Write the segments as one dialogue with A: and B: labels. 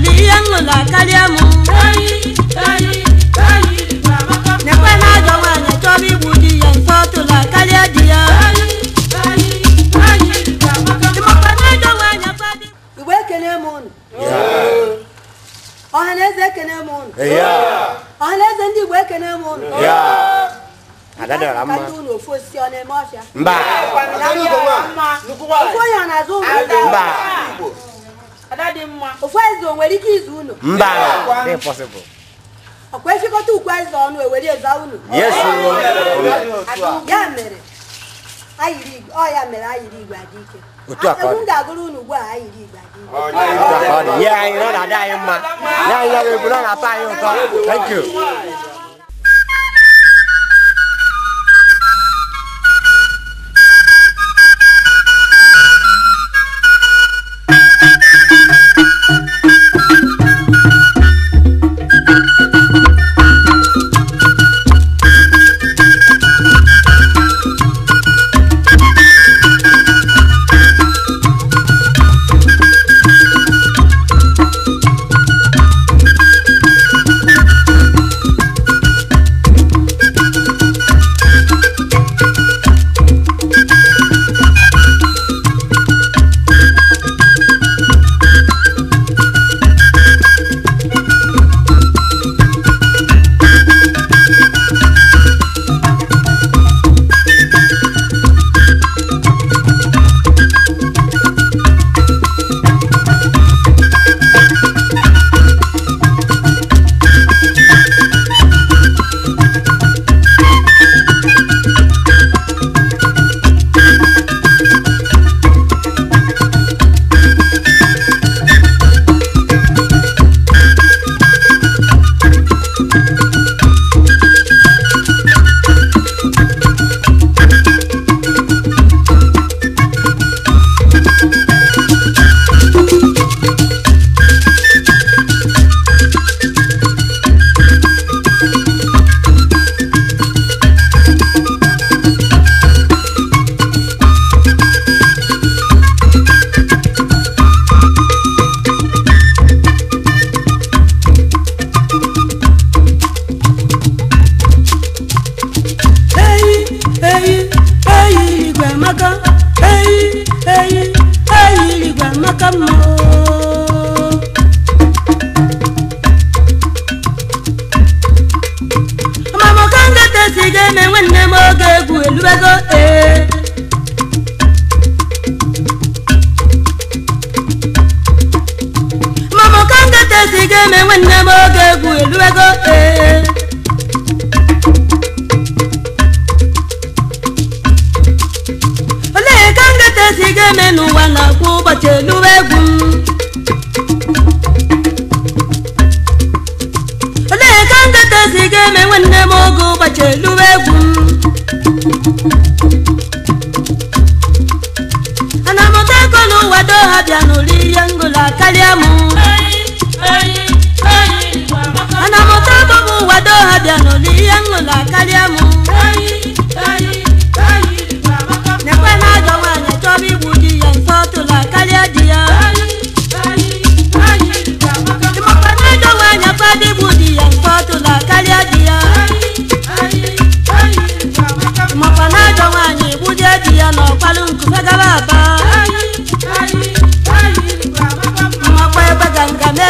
A: uliyangola kaliamu nekwena jowene cobi budiyen fotula kaliadiya igbo ekene m unu ọhanaeze ekene m unu ọhanaeze ndị igbo ekene m unu unu ofu osisi ọ na-eme ọfịa ofu onye ọ na-azụ ụlọ ofu eze o nwere ike izu unu mba ọkwa efekọta ukwu eze ọnụ ewere eza unu ya mere mere ayiri igwe ike ga-agụrụ unu ugbu a ayiri igwe ike anyị na-adị anyị mma na ebu na na anyị ụtọ thank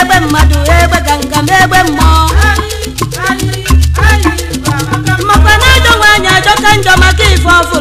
A: egbe mmadụ egbe ganga m egbe mmụọ makwa na edowe anya ajọka njọ maka ife ọfụ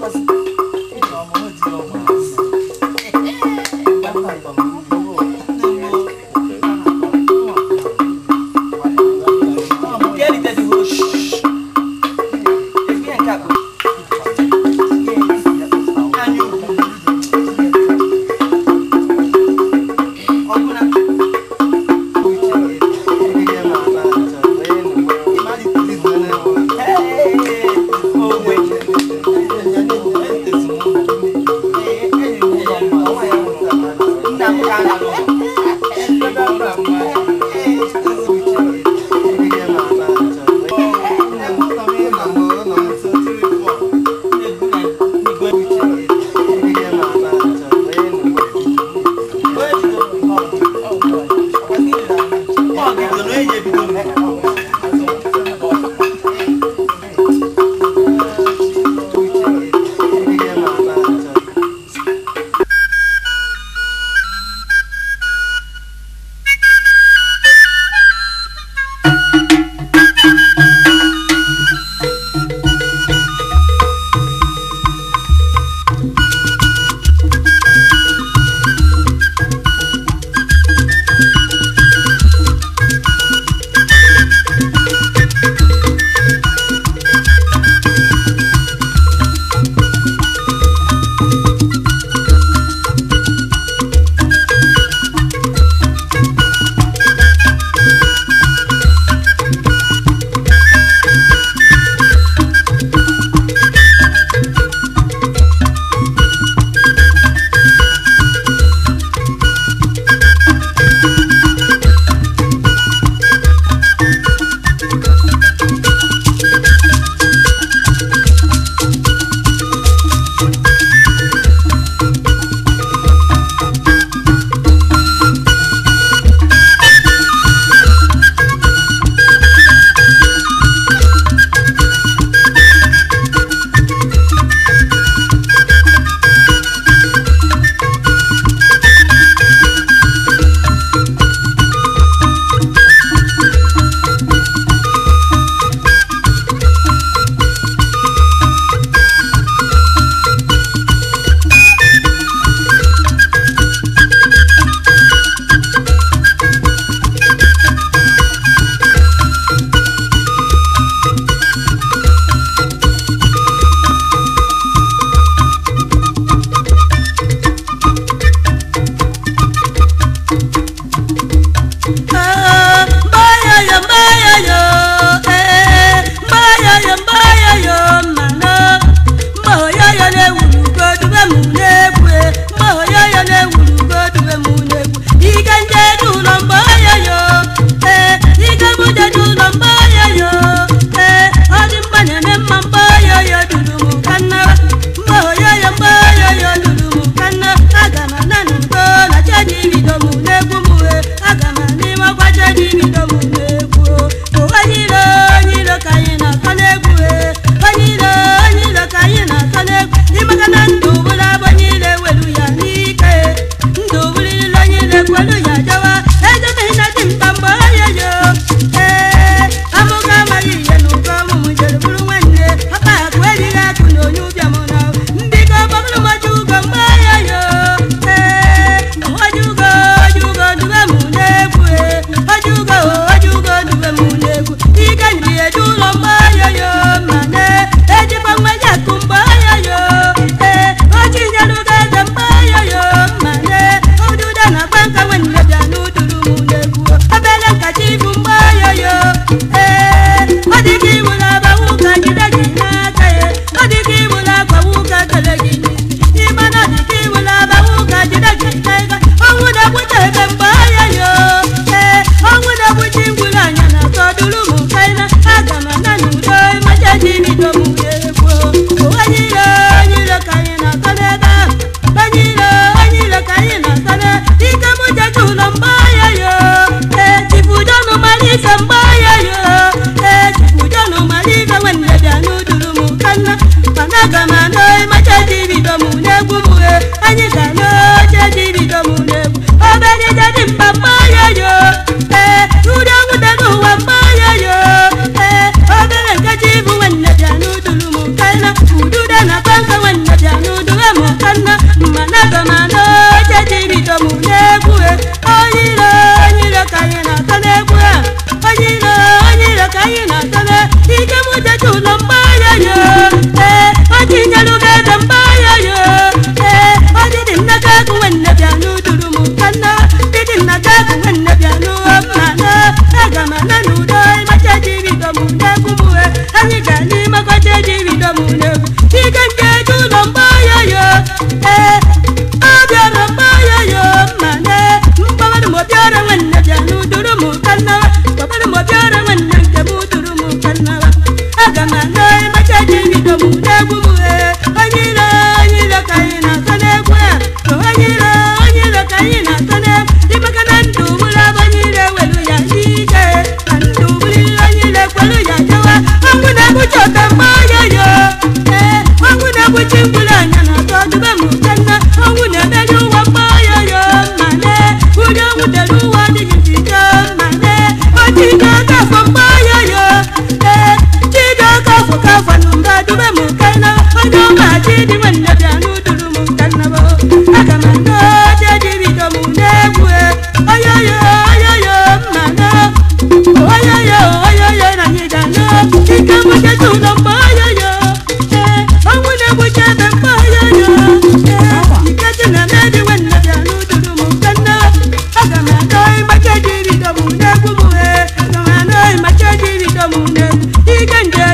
A: was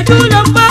A: do the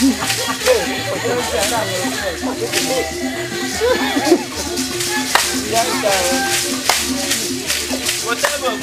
A: Whatever,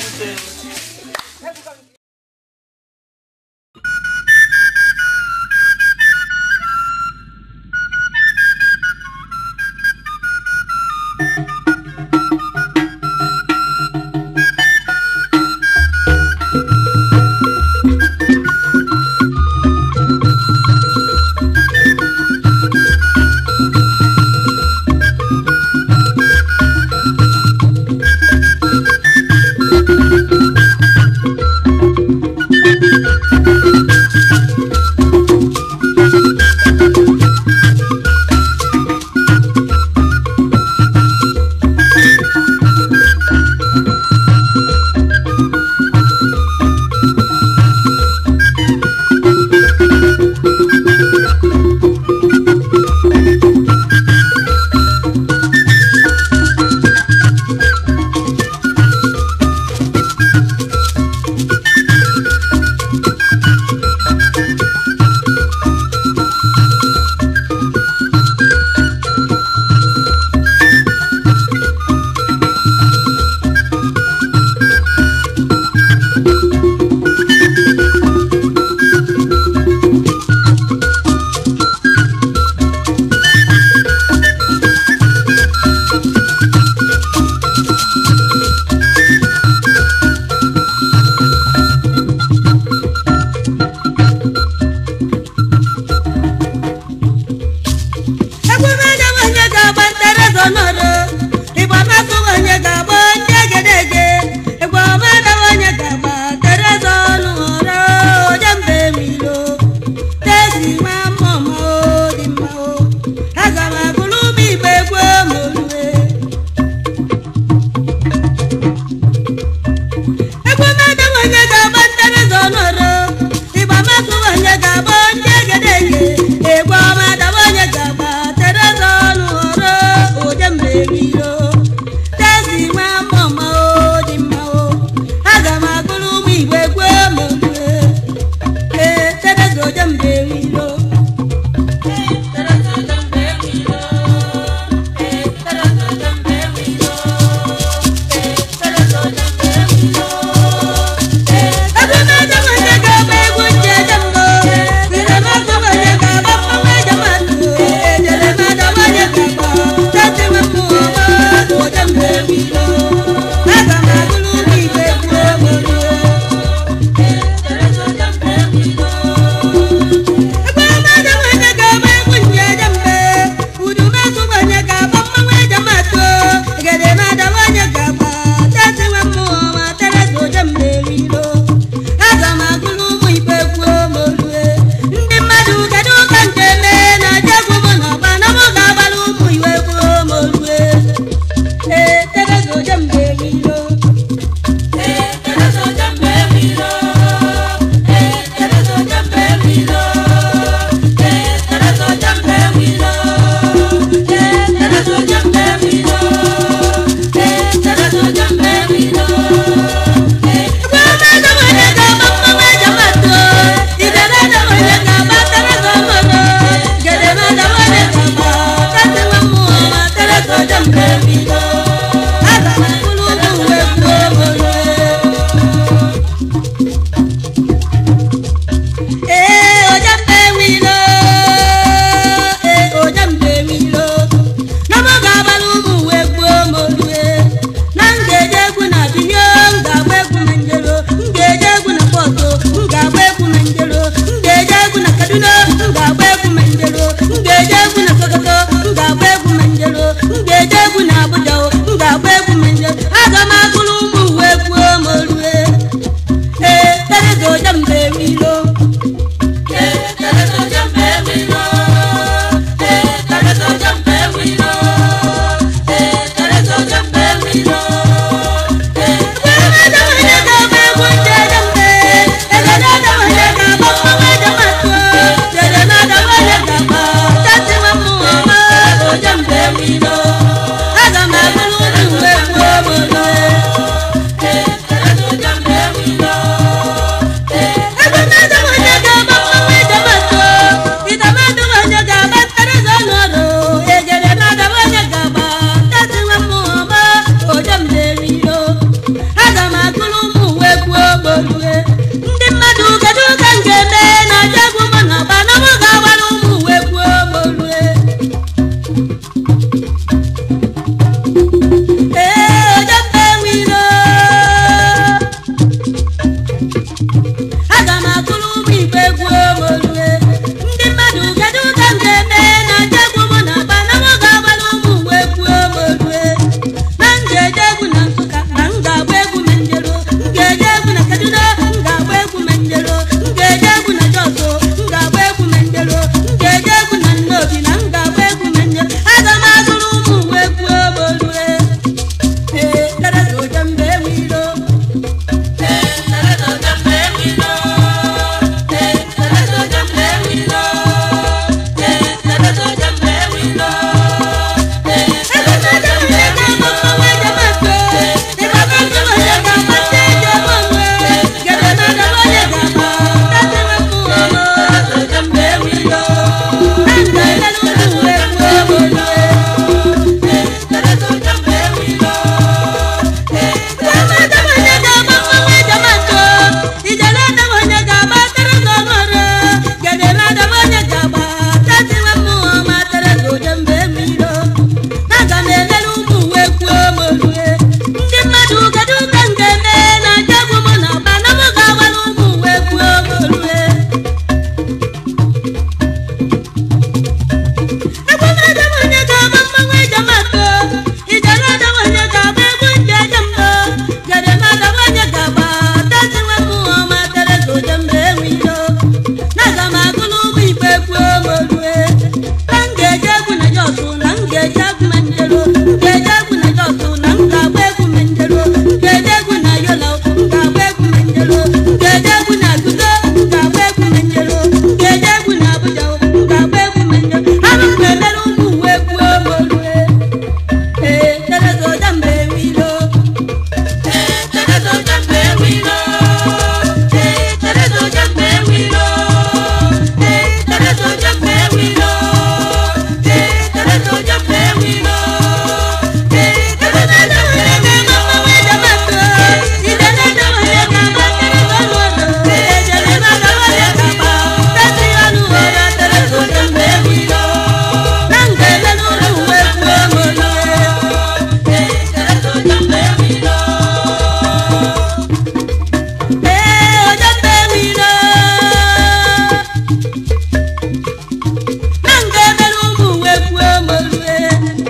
A: Yeah.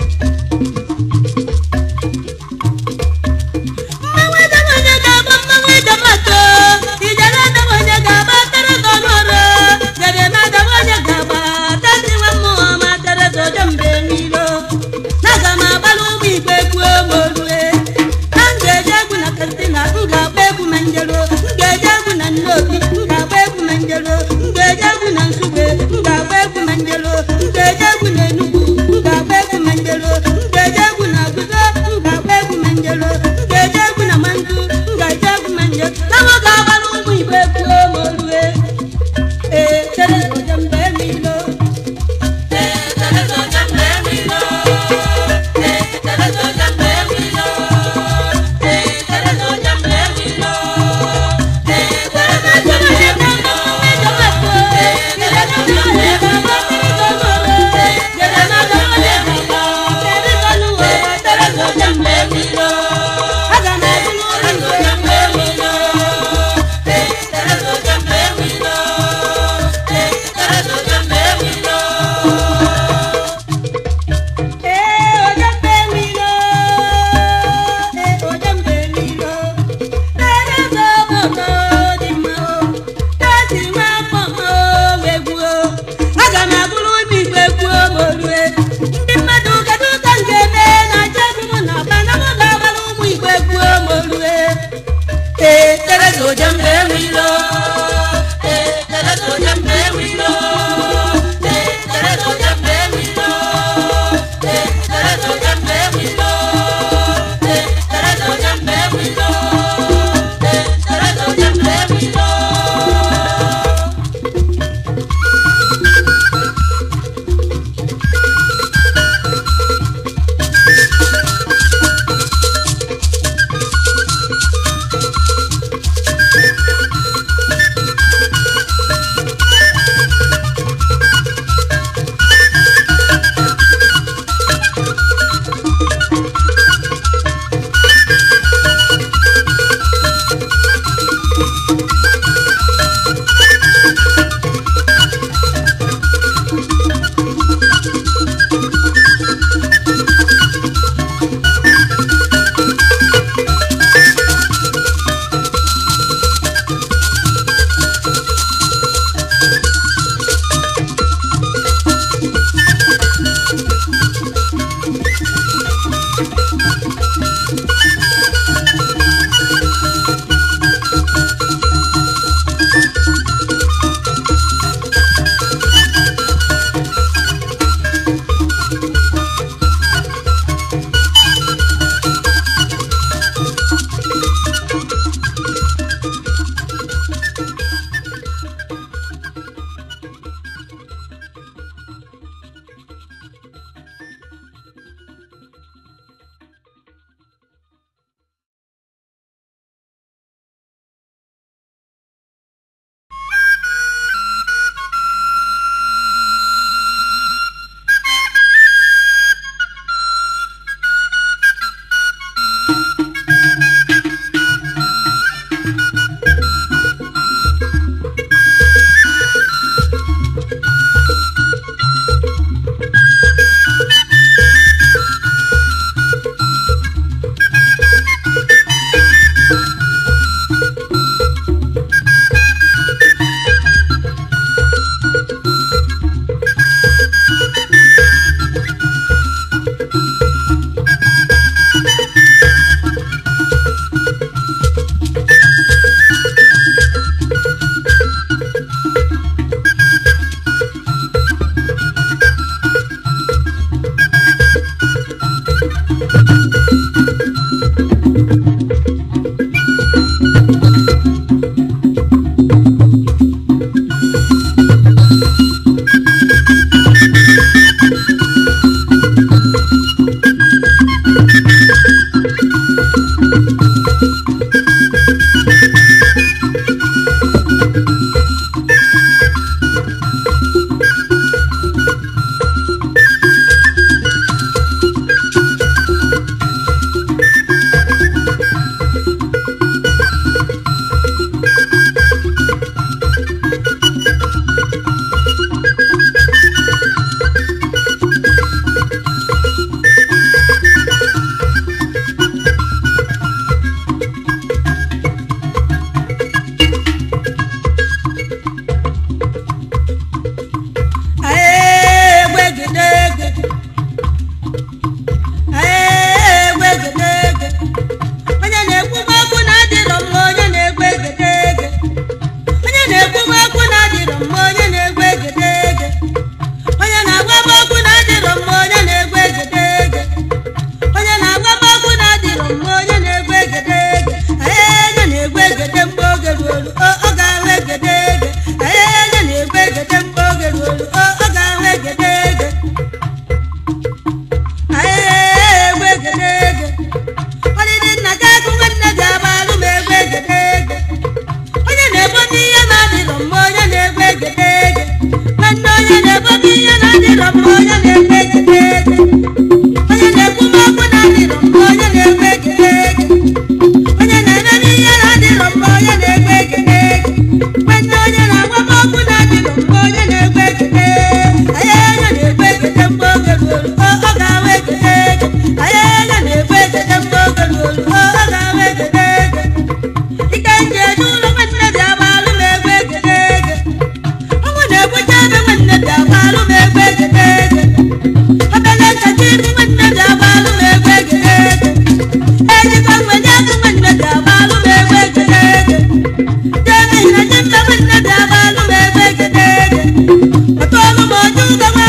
A: ¡Gracias!